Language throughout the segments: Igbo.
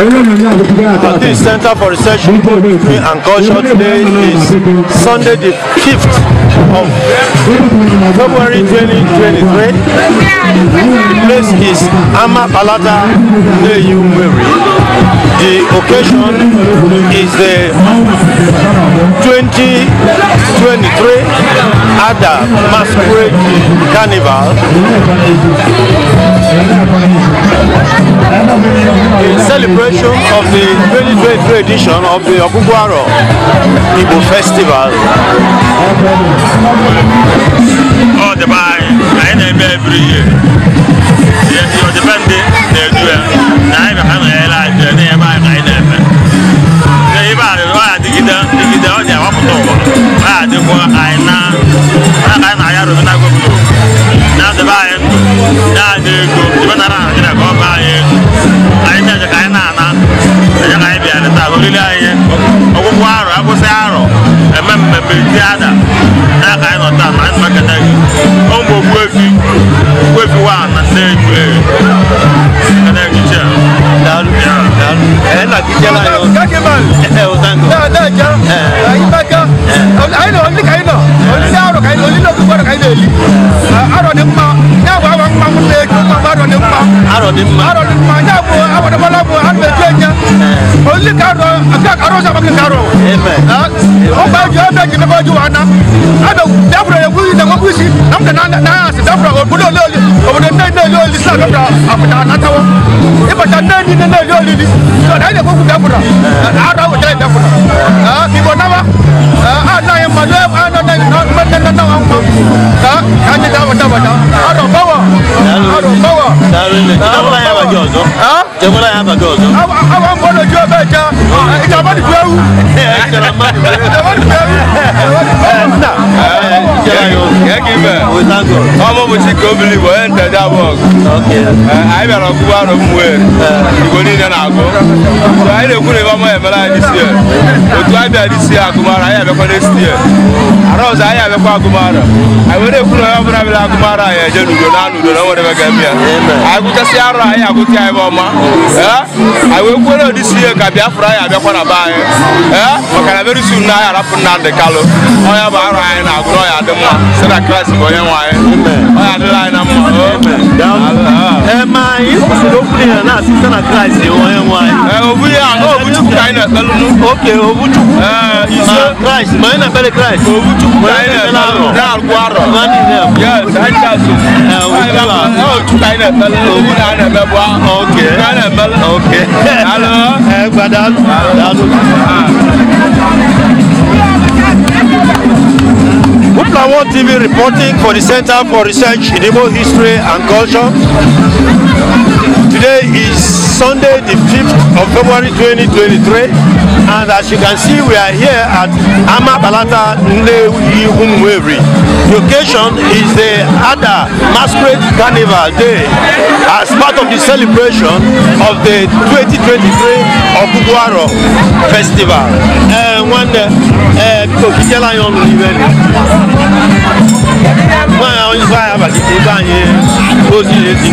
At Center for Research History and Culture today is Sunday the fifth of February 2023. The place is Amapalata Neyumweri. The occasion is the 2023 Ada Masquerade Carnival. in celebration of the 2023 edition of the Okugwaro Igbo Festival ọ dịba anyị anyị na every year yesi ọ dịba ndị na-edu ya na anyị na ha na-ele anyị na ebe anyị ka anyị na-eme na ebe a ọ adịgide dịgide ọ na-ewepụta ụwa ọ ya adịkwa anyị na ka anyị na-aya rụzi na na-adịba anyị na-adị ego ibe nara Naịjirịa ka ọ baa anyị ego anyị na-eje ka anyị na-ana eje ka anyị bịara taa oriri anyị ọgwụgwụ arọ akwụsị arọ eme mmemme ti ada na ka anyị nọ na anyị maketa gị ọ mgbe okpuefi okpuefi wa na ndị dina na yo lidi so da ne ko ku dakura a da wuta dakura a bi bona ba a ma le a na ma na na na ma ka ka ni wata wata a bawa a bawa da ya ba jo zo a ya ba jo zo a a wa mo lo jo ja ita ba di bewu ita ba di bewu ita ba di yo ya ki be we thank god omo mo ti ko believe we enter Eh, anyị bịara ọgụgụ arụ mmụọ eh. igbo niile na-agụ anyị na-ekwu na anyị isi otu anyị isi agụmara anyị abịakwa arụ ọzọ anyị abịakwa agụmara anyị were ekwu na onye ọbụla bịara agụmara anyị eje n'udo na nwere bịa anyị gụchasị anyị agụta ya ọma eh? anyị wee kwuere ụdị isi ihe ka anyị abịakwa na be anyị ee maka na merisi na anyị arapụ Kalụ onye bụ arụ anyị na-agụ ọya adị mma si na bụ onye nwe anyị adịla anyị na mma ɛma eh, eh, yesu eh, ló fún yẹn náà sí sẹ́nà christ wọ́n yẹn wọ́n ayé. òbu yẹ àná òbu tukù ká iná pẹ̀lú nù. ok òbu tukù. ìṣe christ mọ̀ iná pẹ̀lú christ. òbu tukù ká iná pẹ̀lú dàrú àrọ̀. mani nẹ. yẹ sáyẹn ká so. ẹ o ti la. ẹ òbu náà iná bẹ bọ́. ok ká iná pẹ̀lú. ok. alo. ẹ gbadá lu. Number One TV reporting for the Center for Research in Igbo History and Culture. Today is Sunday the 5th of February 2023. And as you can see, we are here at Amabalata Nlewi Humweri. The occasion is the Ada Masquerade Carnival Day as part of the celebration of the 2023 Okuguaro Festival. Uh, one, uh, wọ́n àwọn ìfọ̀ àbàkìtì bá yẹn ó sì lè ti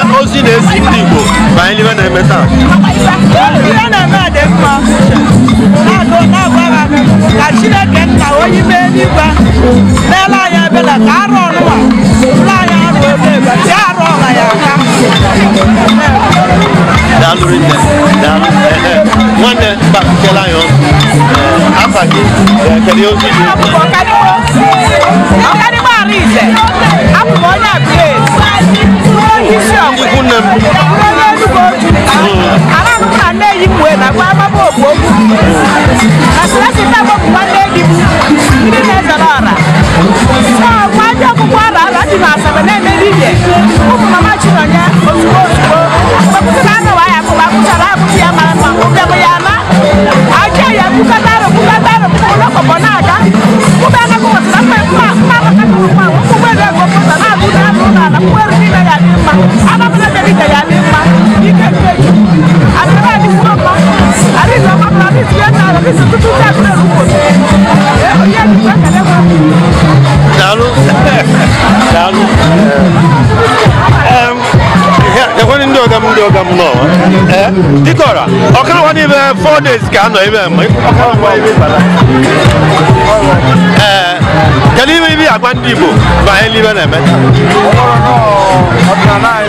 anyị na-esi ndị Igbo banyere ibe na-eme taa na-eme a dị mma ka Chineke nna onye ime eluigwe n'ele anya ebela ka arụ ọnụma ụlọ anyị arụ ebe ebe si arụ ọla ya aka nwanne afa gị ozi gị ize abụ m onye abụlaezionye Enugwu oju ara m na nne m wee na gwa amama okwu Dikora, dịkọra ọkawa n'ime four days ka anọ ebe ee kedu ime ibi agwa ndị igbo banye n'ibe na-eme ọdịnala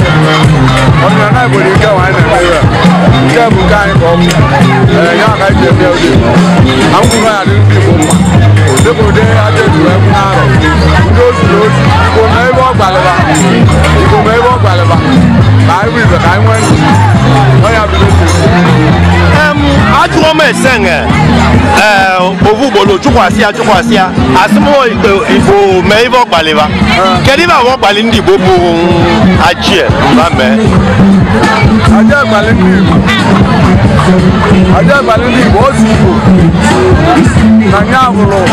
igbo dị nke nwa anyị na-eme ebe nke bụ nke anyị ka ọ bụ ya ka anyị ji eme ụdị akwụkwọ ya dị ndị igbo mma dịbụ ụdị aja ejuru ebe na-arụ ndị ozi na ozi igbo ma ebe ọ gbalịba igbo ma ebe ọ gbalịba ka anyị bụ ibe ka anyị nwee onye esenge eh, ovu gbolo chụkwasị ya chụkwasị ya asụmụ igbo mee ibe ọkpaliba kedu ibe abụọ ọkpali ndị igbo bụ achie mba mee ndị igbo ozi na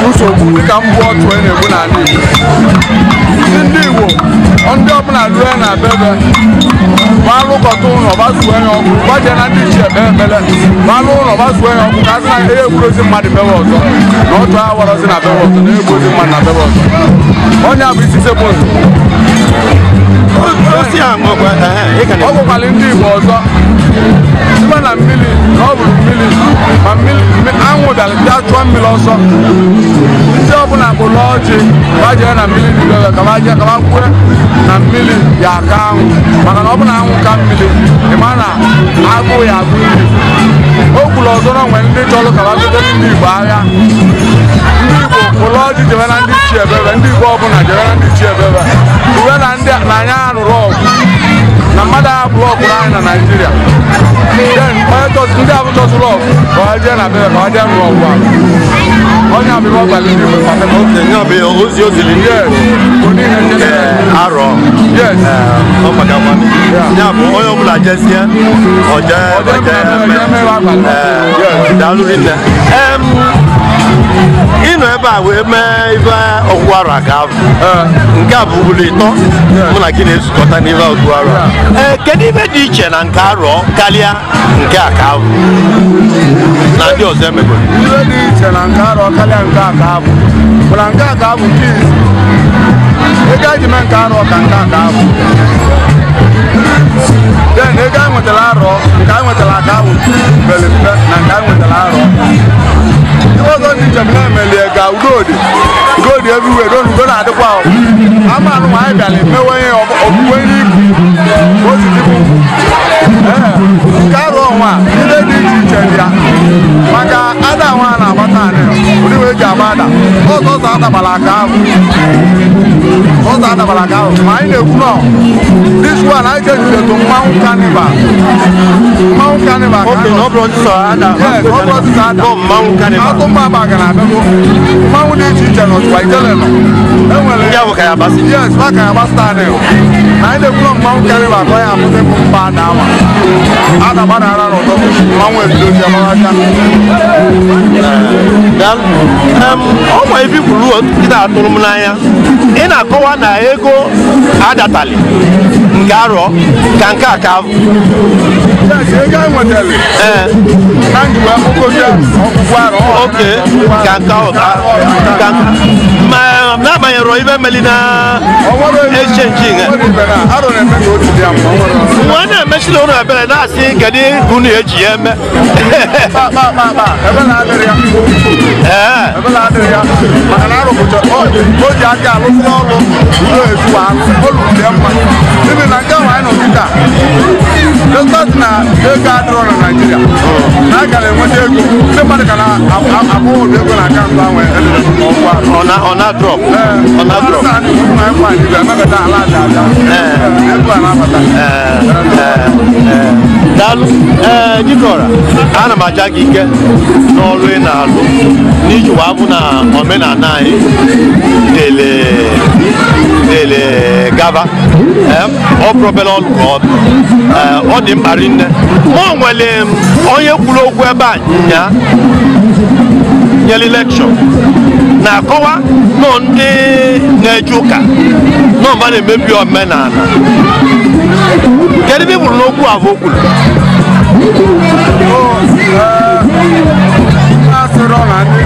nsogbu na-egbu ndị ọbụla rue na bebe malụkọta ụlọ gbasuo ya ọkụ gbaje na ndị ichie kpee ekpele malụ ụlọ gbasuo ya ọkụ ka a na ihe egburozi mmadụ bebe ọzọ na otu ha warọzi na bebe ọzọ na egburozi mmadụ na bebe ọzọ onye a bụ isi sekpụzụ ọ bụkwara ndị igbo ọzọ site na mmiri na ọ bụrụ mmiri ma anwụ bịara bịa chụọ mmiri ọsọ ndị ọbụla kpụrụ ọjị ma jee na mmiri dibere ka ma jee ka ma kwue na mmiri ya aka anwụ maka na ọ bụ na anwụ ka mmiri ịma na agụụ ya agụ iri o kwuru ọzọ na nwere ndị chọrọ ka ma gote ndị igbo agha ndị igbo kpụrụ ọjị jebe na ndị chi ebebe ndị igbo ọbụla jebe na ndị chi ebebe uwe na anyị arụrụ ọgụ because today I haven't just rough. Kọ̀wájẹ́ nà bẹ́ẹ̀ kọ̀wájẹ́ nù ọ̀wà. Ọ̀nyà mi wọ́n gbàgbé ní ìlú pàtẹ́. Ọ̀kẹ́ ní ozi ozi lè ní. Mo ní Arọ. Ọ pàdé ọmọ mi. Ní onye ọ̀bụla jẹ́ sí ẹ. Ọ̀jẹ́ ọ̀jẹ́ mẹ́wàá nọ ebe a wee mee ife ọgwụgwụ arụ a ga-abụ nke a bụ ugboro ịtọ mụ na gị na-ezukọta n'ife ọgwụgwụ arụ ee kedu ife dị iche na nke arọ karịa nke a ka abụ na ndị ọzọ emegoro ife dị iche na nke arọ karịa nke a ka abụ bụ nke a ka abụ nke izi ego eji mee nke arọ ka nke a ka abụ den ego anyị nwetara arọ nke anyị nwetara aka abụ mpe na nke anyị nwetara arọ because all these jẹ̀mí náà mẹ̀lẹ̀ ẹ̀gà góòdì góòdì everywhere lónìí lónìí àdúgbò àwọn àmà àánú wàá ìdàlẹ̀ mẹ́wọ́ yẹn òkúwé ní ìkù ó sì ti kú kárọ̀ ọ̀hún à ilé ní ìjì ìjẹ̀dìá maka ada àwọn àná àbátà àná oníwèé jẹ àbá àdà ó sọ̀tọ̀ àdàbàlà kàá fún. Fada Balagao. My name now. This one I tell you to Mount Carnival. Mount Carnival. Okay, no problem, sir. Yes, no problem, sir. Go Mount Carnival. Go Mount Carnival. Mount Carnival. Mount Carnival. Yeah, we can pass. Yes, we can pass that now. My name now Mount Carnival. Go and put it back down. Ada bana ara no to. Mount Carnival. Um, ọ ọnwa ebikwuru ndị atụrụ m n'anya ị na-akọwa na ego adatali nke arọ ka nke a ka oke e eh. ma ibe meli na echenji nwa na-emechiri ụlọ ebere na-asị kedu ka unu eji ya eme ebeladi ya maka na arụpụcha o ji aka alụsị ọrụ ụlọ ezu alụ olụdị mma n'ihi na nke nwaanyị nọ kịta destat na ego adịrọ na naijiria na a gara enweta ego ndị mmadụ ka na-abụ ụdị ego na akaụntụ ahụ edere n'ọkwa ọ na-adrọp ọ na-adrọp na anyị kwa anyị ga-emebata ala aja aja ego a na-abata daalụ ee dịkọra ana m aja gị ike n'ọrụ ị na-alụ n'iji wee bụ na omenala anyị dele dele gaba ọ bụrụ ọlụ ka ọ bụ ọ dị mkpa rinne ma ọ nwere onye kwuru okwu ebe a nya nyere lekshọn na-akọwa nọ ndị na-eje ụka nọ mba na-emebi omenala kedu ebe bụrụ n'okwu abụ kwuru na ndị na-eje ụka na-emebi omenala ọrịa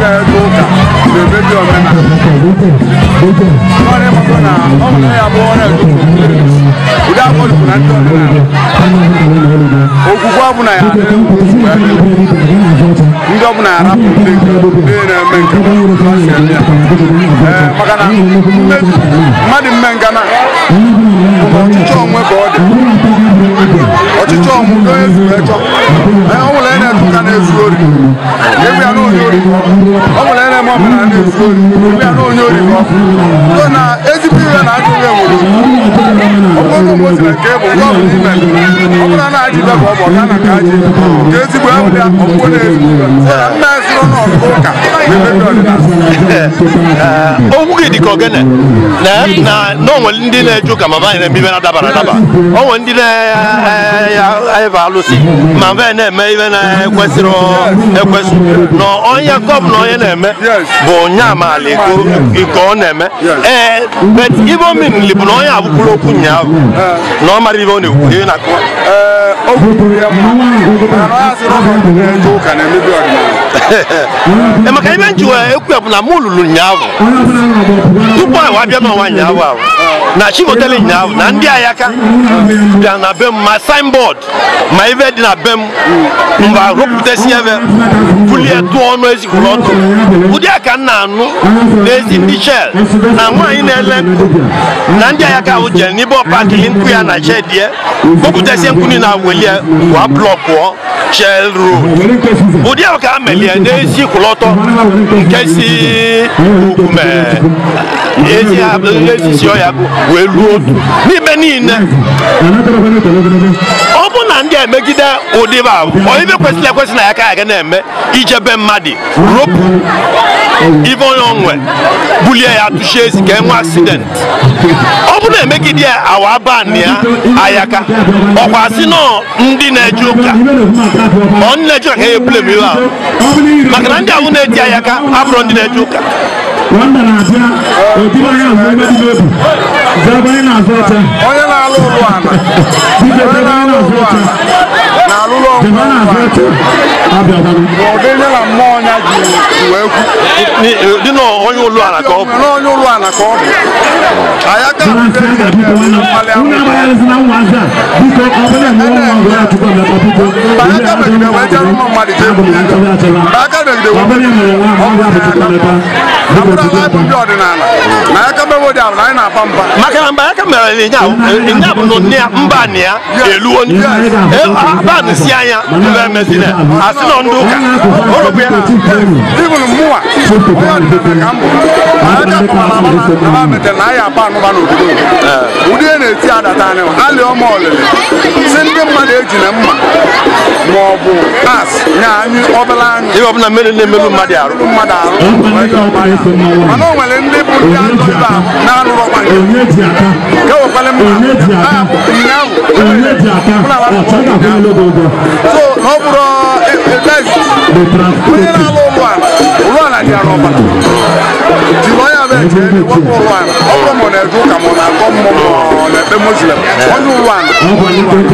na ọ bụ ya bụ ọrịa edupu mmiri ụdị akọlụkwu na ndị omenala ogwugwu abụ na ya ndị ọbụla arapụ ndị na-eme nke maka na mmadụ mme eh, na ọchịchọ onwe ka ọ dị ọchịchọ onwe ka onye zuru echọ ọ nwere onye na-ezu ụka na-ezu ori ebe ya na onye ori ọ nwere onye na-eme ọbụla na-ezu ori ebe ya na onye ori ọ na ezigbo ihe na-adịghị enwe nke ọ bụ ka gị dị ka ogene na onwere ndị na-eje ụka ma banyere eme ibe na-adabara adaba onwere ndị na-ebe eh, alụsị ma be na-eme ibe na-ekwesịrị ekwesị na onye na onye na-eme bụ nya maala iko ọ na-eme ee eh, ibe omenili bụ na onye abụkwuru okwu ụnyaahụ na ọ mara ibe ọ na-ekwu ihe na akụwa emeka ibe nji e ku ya bụ na mụ lụrụ ụnyaahụ tupu anyị abịa n'ọnwa na ahụ na chikotele na ndị ayaka bịa na be m ma signboard ma ibe dị na be m mba rụpụtasị puli bulie tụọ ọnụ ezikwuru ọtụ ụdị a ka m na-anụ n'ezi ndị na nwaanyị na-ele na ndị ayaka ahụ jere n'ibe pa akili nku ya na hyɛ deɛ wokuta sɛ nku ni na aweliɛ wa blɔk wɔ shell road wòdi àwọn kan mɛlɛ ne si kulɔtɔ nkesi kumɛ esi abɛ esi si ɔya welu odu mi bɛ ni nɛ. bụrụ na ndị emegide ụdịbe onye ibe kwesịrị ekwesị na ya ka aga na-eme ijebe mmadụ ropu ibe onye onwe bulie ya tụchie ezi ka enwe asidenti ọ bụrụ na emegide awa ban ya ayaka ọkwa asị nọ ndị na-eje ụka ọ ndị na-eje ụka ka ya ebule m iwe ahụ maka na ndị ahụ na-eji ayaka abụrụ ndị na-eje ụka onye na-azụ alụlụ ụlụana onye na-alụ ụlụana na alụlụ ọgwụ ụdị ihe na mmụọ ya ji n'onye ụlọ ala ka ọ bụ onye ụlọ ala ka ọ bụ anyị aka megide wee jere ụmụ mmadụ na aka na bụ ya bolo even mua oya di na kambo aya ka kuma na mana na ba mete na aya apa anuba na obodo ụdị a na-eti adata anyị alị ọma ọlịlị si ndị mmadụ eji na mma ma ọ bụ as nye anyị ọbụla anyị ihe ọbụla mmeri na-emerụ mmadụ arụ mmadụ arụ mana o nwere ndị bụ ndị ajọ ibe a na-alụrọkwa nke wekwale mma ah, ahụ ụnyaahụ so na ọ bụrụ e, e, One Kunyina lolwa lwana dia one Jiloya one ni wako lwana Obo mwana eduka mwana komo mwana Be muslim one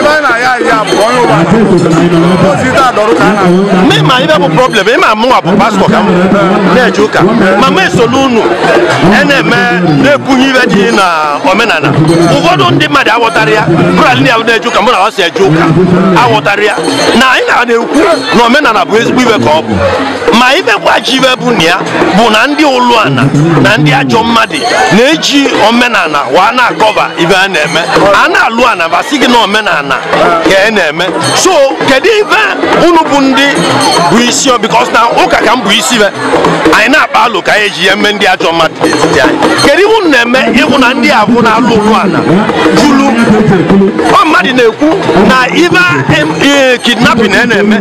lwana one Oh, iri ma ibe bụ problem ịma mụnwa bụ pastọ ka m na-eje ụka ma ma esolu unu na-eme na-ekwunye ibe dị na omenala ụfọdụ ndị mmadụ aghọtara ya bụrali na na-eje ụka mụ na ọ eje ụka aghọtara ya na anyị na-ekwu na omenala bụ ezigbo ibe ka ọ bụ ma ibekwa ji ibe bụ na ya bụ na ndị ụlụ ana na ndị ajọ mmadụ na-eji omenala wa na-akọva ibe a na-eme a na-alụ ana basị gị na omenala ka ị e na-eme so kedu ife unu bụ ndị bụ isi because na ụka ka m bụ isi be anyị na-akpa alụ ka anyị eji ya eme ndị ajọ mmadụ n'etiti anyị kedu ihe unu na-eme ịhụ na ndị abụ na-alụ ụlọ ala julu ọ mmadụ na-ekwu na ife e, kidnapping a na-eme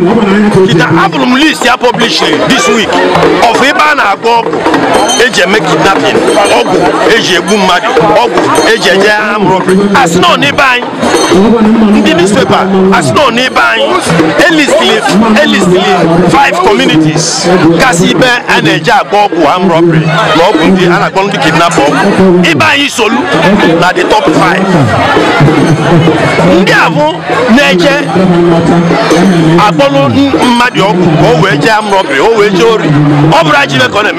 kita abụrụ m list ya publish this week of ibe a na-agba ọgwụ eji eme kidnapping ọgwụ eji egbu mmadụ ọgwụ eji enye ha mụrụ asị na ọ n'ebe anyị ndị newspaper a asị na n'ibe anyị elistili five communities kasị ibe a na-eji agba ọgwụ armed robbery na ọgwụ ndị a na ọgwụ na the top five ndị abụ na-eje akpọlụ mmadụ ọgwụ ka o wee robbery ori ọ bụrụ ajibe ka ọ na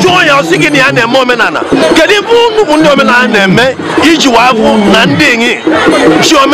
jụọ ya na ya eme omenala kedu na-eme iji na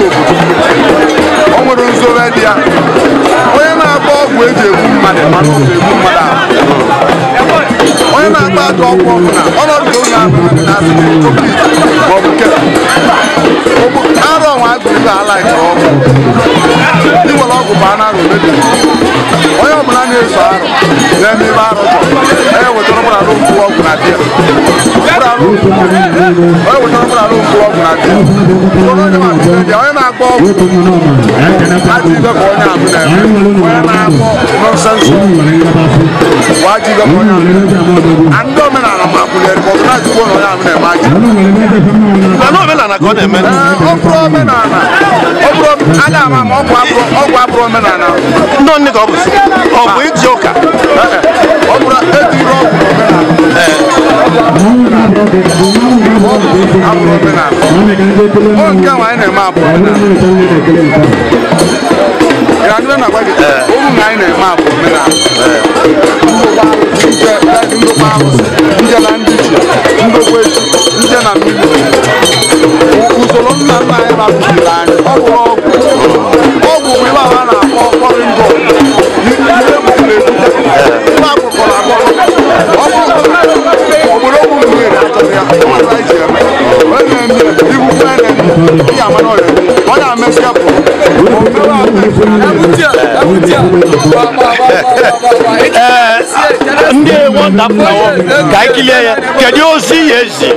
obodo ọ nwere nzobe dị ya onye na-agba ọgwụ eji egbu mmadụ ọ ga egbu mmadụ ahụ onye na-agba aka ọgwụ ọbụla ọnọdụ onye ahụ maọbụ nke arụ ọnwa agụrụ ala nke ọgwụ iwere ọgwụ bụ anụ arụ ọbụla na-eso arụ n'eme ebe arụ jọ ewetara ụgbọala nkwu ọgwụ na di ya ewetara ụgbọala nkwu ọgwụ na di ya onye na-agba ọgwụ ajụ ibe ka onye abụ na-eme onye na-agba nọnsensị ọgwụ ajụ ibe ka onye abụ na ndị omenala na kulieri kɔ n'a ju kɔnɔ y'a minɛ maa jɛ. nka n'o bɛ nana kɔ dɛ mɛ. o kura bɛ na na o kura ala y'a ma mɔ o kura o kura kura bɛ na na. n'o ni ka o bɛ so ɔ bɔn i ti o kan. o kura e ti yɔrɔ kura bɛ na. a kura bɛ na. o kɛ wa e na ma a kura bɛ na granule na gwa gita oru na anyị na-eme abụ mmiri ahụ ndokwa arụsị nje na ndị ji ndokwa eji nje na mmiri usoro nna nna anyị rapụziri anyị ọ bụ ọgwụ ọgwụ nwere a na-akpọ kpọrịndọ ihe bụ na-ebute adaptawo ka ekili yɛ kɛdi ozi yɛ zi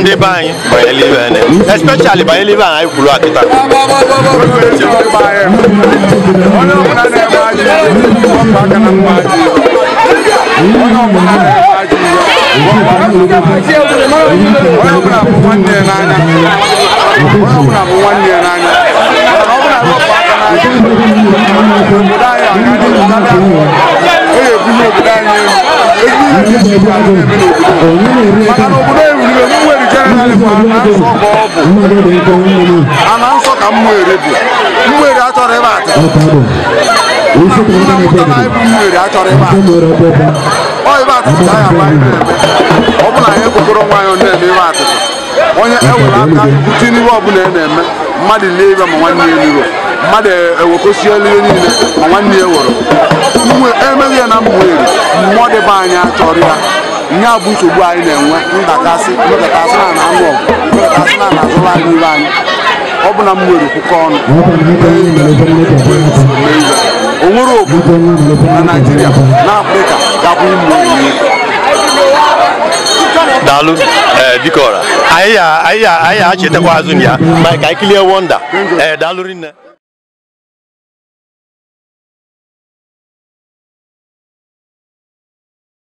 ndị be anyị banyere ibe ene especially banyere ibe anyị kwuru akịta onye ọbụla na-eme ana nsọ ka mmụere bụ mmụere achọrọ ịba atụ mmụere achọrọ ịba atụ ọ ịba atụ ka ya ama ihe na-eme ọ bụla na anyị ekwekọrọ nwaanyị na-eme ịba atụ onye ewere aka bute n'ihe ọbụla ị na-eme mmadụ lee ibe ma nwanne ya liro mmadụ ewekosie ihe niile ma nwanne ya mmụọ emeghị ya na mmụere mmụọ dịbe anya chọrọ ya ihe abụ nsogbu anyị na-enwe ndakasị mmekọtasị na na anụ ọgụ mmekọtasị na na azụrụ anyị ibe anyị ọ bụ na m nwere okwukwe ọnụ o nwere obodo na naijiria na afrịka gabụ ụmụ daalụ ee ọra anyị ya anyị ya anyị ya achetakwa azụ na ya ma ka anyị kilie wonda e, daalụ rinne